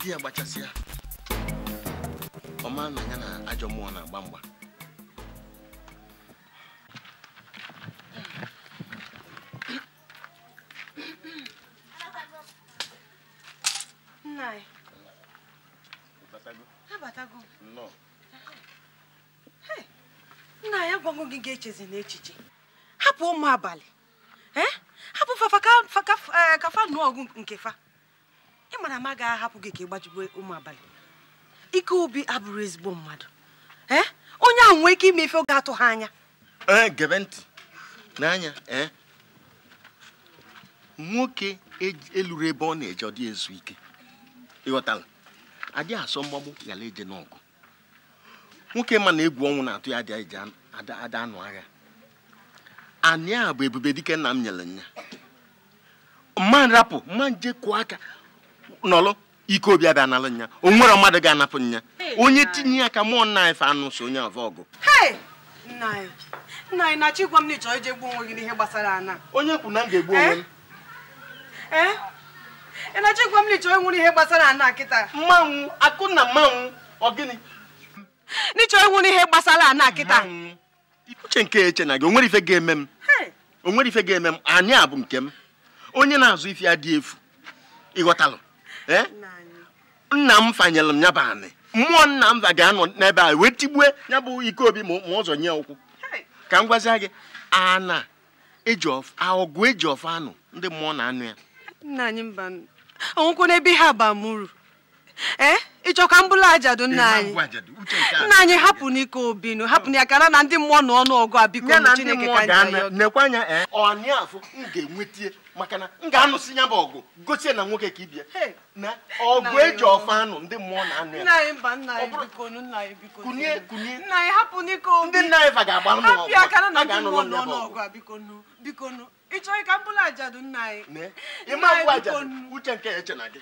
Ya, baca sih ya. Oma nanya na ajo mua na bamba. anabatago nna ya gwago gị ga-echezi n'echiche hapụ ụmụ abalị hapụ eh, ka fa nụọ ọgụ nke fa ị mara ma agaghị ahapụ gị ka ị gbajigbe ụmụ abalị ike ubi abụrụ ezigbo mmadụ onye ahụ nwee ike ime ife oge atụ ha anya gebe ntị n'anya nwoke e, eluru ebe ọ na-eje ọ dị ezu ike ịghọtala adị asọ mgbagbu ghara eje n'ọgụ nwoke ma na egwu ọnwụ na-atụ ya adị eji ada anụ agha anyị a bụ ebube dike nna m nyere nya mmadụ nrapụ mma nje kụọ aka nọlụ ike obi abịa nalụ nya o nwere mmadụ ga-anapụ nya onye tinye ya ka mụọ nna ife anụ so onye ọva ọgụ nna anyị na-achọ ịgwa m na ịchọrọ iji gbuo onwe gị n'ihe gbasara ana onye kwu na m ga-egbu onwe m eh? Eh? ị na-achọ ịgwa m na ịchọrọ ịnwụrụ ihe gbasara ana kịta mmanwụ akụ na mmanwụ ọ gịnị n'ịchọrọ ịnwụrụ ihe gbasara ana kịta uche nke eche na gị onwere ife ga-eme m onwere ife ga-eme m anyị a bụ nke m onye na-azụ ife ya dị efu ịghọtalụ nna m fanyelụ m ya bụ anị mmụọ nna m ga-anọ n'ebe a wee tigbue ya bụ ike obi ma ụzọ nye ụkwụ ka m gwazie gị ana eji ọgụ eji ọfọ anụ ndị mmụọ na anụ ya nna anyị mba ọnwụkwụ n'ebe ha ba m uru ee eh? ịchọ ka m bụrụ ajadu nna anyị nna anyị hapụ n'ike obinu hapụ na ya ka na ndị mmụọ na ọnụ ọgụ a biko na chineke ka anyị eh? afụ m ga-enweta maka na m ga-anụsị ya bụ ọgụ gosi na nwoke ka ibia na ọgụ eji ọfa anụ ndị mmụọ na-anụ ya kunye kunye ndị nna anyị fa ga-agba ọnụ ọgụ a ga-anụ n'ọnụ ọgụ ị chọghị ka m bụrụ ajadu nna anyị ịma abụ ajadu uche nke ya eche na gị